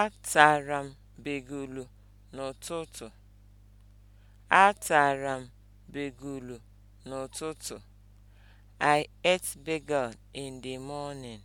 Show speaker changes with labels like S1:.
S1: Atara m begulu n'ụtụtụ. Atara m begulu n'ụtụtụ. I ate bagel in the morning.